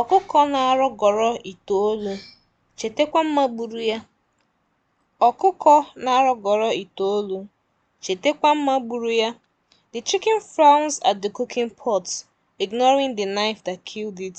Ọkụkọ na-arọgọrọ itoolu, chetakwa mma ya. na-arọgọrọ itoolu, chetakwa mma gburu ya. The chicken frowns at the cooking pot, ignoring the knife that killed it.